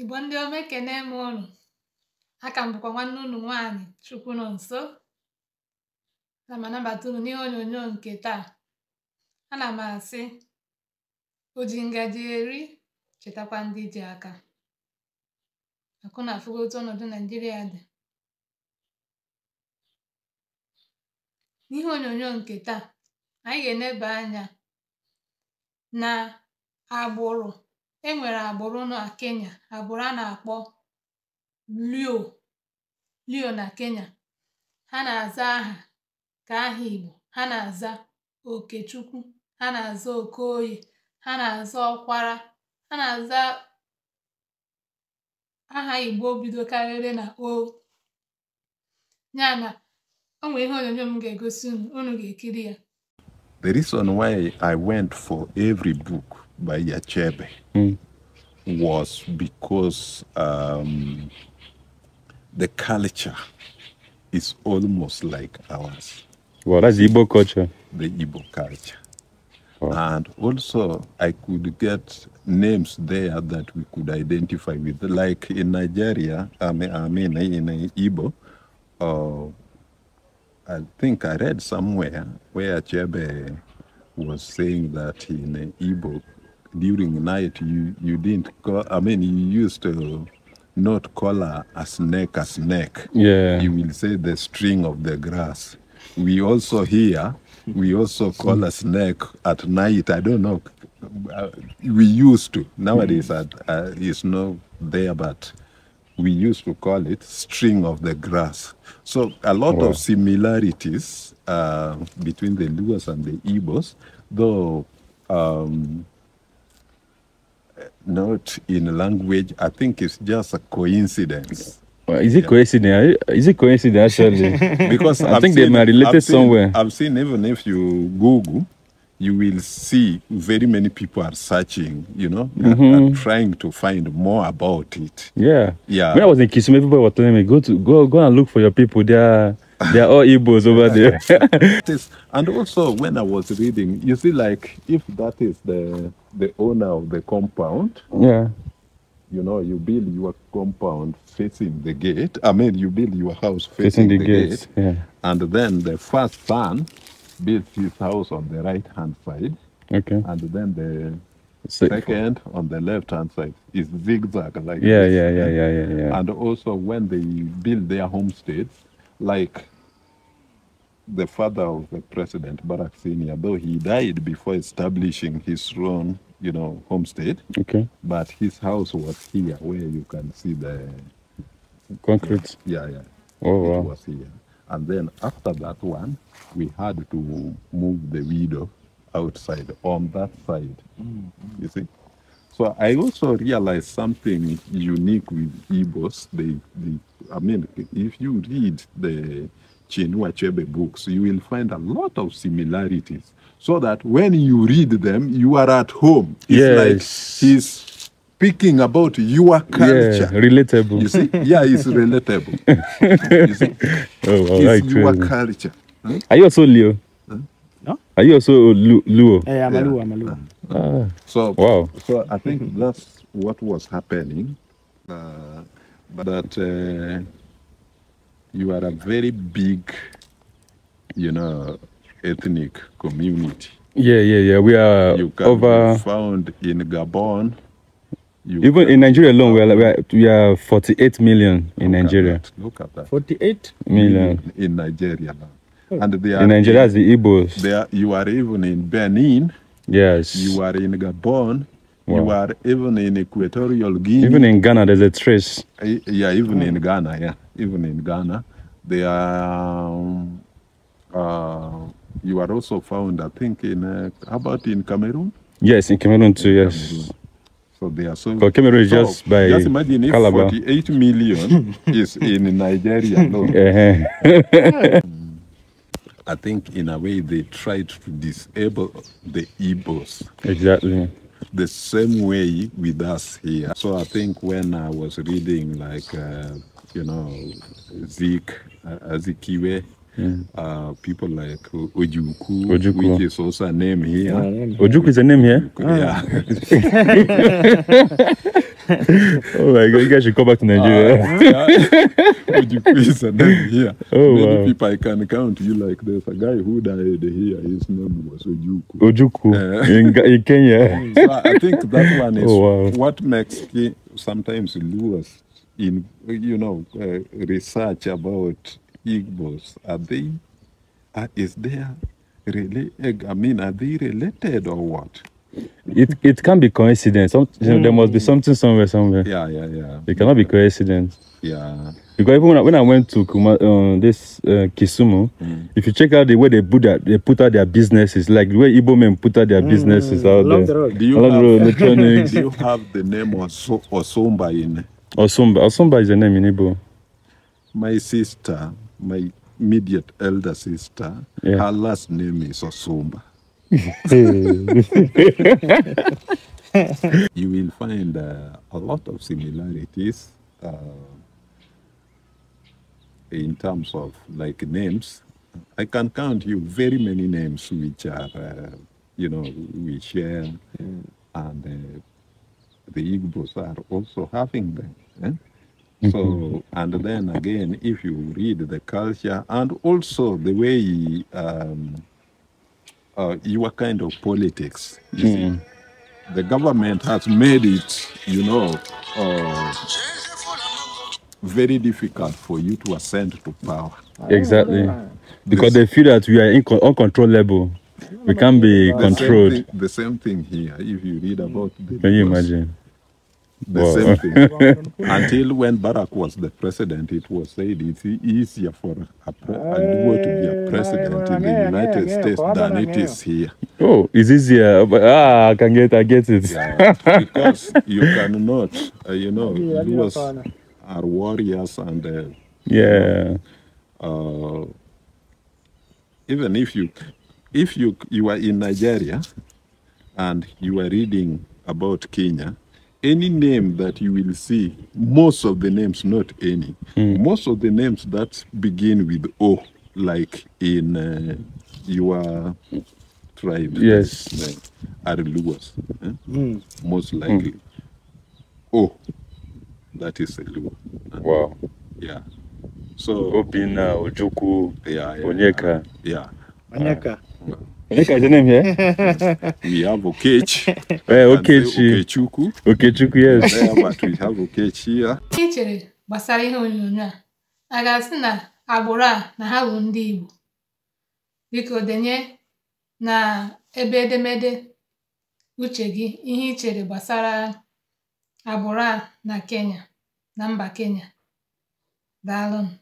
igbo ndị ome ekene m ụnụ aka m bụkwa nwanne ụnụ nwaanyị chukwu nọ nso na m anabata unu n'ihe onyonyo nke taa ana m asị o ji ngaji eri chetakwa ndị ji aka akụ na afụgo otu ọnọdụ naijiria dị n'ihe onyonyo nke taa anyị ga-eneba anya na agbụrụ e nwere agbụrụ na Kenya agbụrụ a na-akpọ Lio Lio na Kenya ha na-aza aha ka aha Igbo ha na-aza Okechukwu ha na-aza Okoye ha na-aza Ọkwara ha na-aza aha Igbo karịrị na o ya na o nwere ihe onyonyo m ga-egosi unu unu ga-ekiri ya the reason why I went for every book by Yachebe mm. was because um, the culture is almost like ours. Well, that's Igbo culture. The Igbo culture. And also, I could get names there that we could identify with. Like in Nigeria, I mean, I mean in Igbo, uh, I think I read somewhere where Achebe was saying that in Igbo, during night you you didn't call, I mean you used to not call a, a snake a snake. Yeah. You will say the string of the grass. We also hear we also call a snake at night. I don't know. Uh, we used to nowadays mm. uh, it's not there, but we used to call it string of the grass. So a lot wow. of similarities uh, between the Luas and the ibos though um, not in language. I think it's just a coincidence. Well, is it yeah. coincidence? Is it coincidence actually? because I I've think seen, they are related I've seen, somewhere. I've seen even if you Google, you will see very many people are searching. You know, mm -hmm. and, mm-hmm. trying to find more about it. Yeah, yeah. When I was in Kisumu, everybody was telling me go to go go and look for your people. there. They're all Igbos over there. and also, when I was reading, you see, like, if that is the the owner of the compound, yeah, you know, you build your compound facing the gate. I mean, you build your house facing, facing the, the gates, gate, yeah. and then the first son builds his house on the right hand side. Okay. And then the second on the left hand side is zigzag like yeah, this. yeah yeah yeah yeah yeah and also when they build their homesteads like the father of the president, Barack Senior, though he died before establishing his throne, you know, homestead. Okay. But his house was here, where you can see the concrete. Yeah, yeah. Oh, wow. It was here. And then after that one, we had to move the widow outside on that side. Mm -hmm. You see? So I also realized something unique with Igbos. They, they, I mean, if you read the in Wachebe books, you will find a lot of similarities so that when you read them, you are at home. It's yes. like he's speaking about your culture. Yeah, relatable. You see? Yeah, it's relatable. you see? Oh, it's your culture. Hmm? Are you also Leo? Huh? No? Are you also Lu- Luo? Hey, eh, I'm yeah. a Luo. I'm a Luo. Ah. ah. So, wow. so I think that's what was happening. Uh, that... Uh, you are a very big, you know, ethnic community. Yeah, yeah, yeah. We are you can over. Be found in Gabon. Even in Nigeria alone, we are, we are, we are 48 million in look Nigeria. At look at that. 48 million. In, in Nigeria now. And they are in Nigeria, in, the Igbos. They are, you are even in Benin. Yes. You are in Gabon. Wow. You are even in Equatorial Guinea. Even in Ghana, there's a trace. Eh, yeah, even in hmm. Ghana, yeah, even in Ghana, they are. Um, uh, you are also found, I think, in uh, how about in Cameroon? Yes, in Cameroon too. In yes. Cameroon. So they are so. Cameroon is so, just by. Just imagine if 48 million is in Nigeria No. Uh-huh. I think in a way they tried to disable the EBOs. Exactly the same way with us here. So I think when I was reading, like, uh, you know, Zeke, uh, Azikiwe, yeah. Uh, people like Ojuku, Ojuku, which is also a name here. Ojuku is a name here? Yeah. Ah. oh my god, you guys should go back to Nigeria. Uh, yeah. Would you please and then here? Oh, Many wow. people I can count you like there's a guy who died here, his name was Ojuku. Ojuku uh, in, in, Kenya. so I think that one is oh, wow. what makes sometimes lose in you know uh, research about Igbos. Are they? Uh, is there really? Eh, I mean, are they related or what? it it can be coincidence. Some, mm. There must be mm. something somewhere, somewhere. Yeah, yeah, yeah. It cannot be coincidence. Yeah. Because even when I, when I went to Kuma, uh, this uh, Kisumu, mm. if you check out the way they put that, they put out their businesses, like the way Igbo men put out their mm. businesses out Along there. The road. Do you Along have, road, Do you have the name Oso, Osumba in? Osumba. Osumba is the name in Igbo. My sister, my immediate elder sister, yeah. her last name is Osumba. you will find uh, a lot of similarities uh, in terms of like names. I can count you very many names which are, uh, you know, we share, uh, mm. and uh, the Igbos are also having them. Eh? Hmm. So, and then again, if you read the culture and also the way um, uh, your kind of politics. You mm. see, hmm. the government has made it, you know, uh, very difficult for you to ascend to power. Exactly, ah. because this, they feel that we are uncontrollable. We oh can't be the controlled. Same thing, the same thing here. If you read about, hmm. the can you imagine? The Well, same thing. Until when Barack was the president, it was said it's easier for a, pre- a duo to be a eh, president in the United States than it is here. oh, it's easier. But, ah, I can get, I get it. Yeah, because you cannot, uh, you know, duos are warriors and uh, Yeah. uh, even if you if you you are in Nigeria and you are reading about Kenya, any name that you will see, most of the names, not any, mm. most of the names that begin with O, like in uh, your tribe, yes, uh, are Luas, eh? mm. most hmm. likely. Mm. O, that is a Lua. Eh? Wow. Yeah. So Opina, Ojuku, yeah, yeah, Onyeka. Yeah. Onyeka. Uh, Onye ka Jenemie? We have Okechi. Eh, Okechi. Okechukwu. Okechukwu, yes. But we have Okechi here. Ị chere gbasara ihe onyonyo a, a ga-asị na agbụrụ a na ha bụ ndị Igbo. Biko denye na ebe edemede uche gị ihe i chere gbasara agbụrụ a na Kenya, na mba Kenya. Daalụnụ.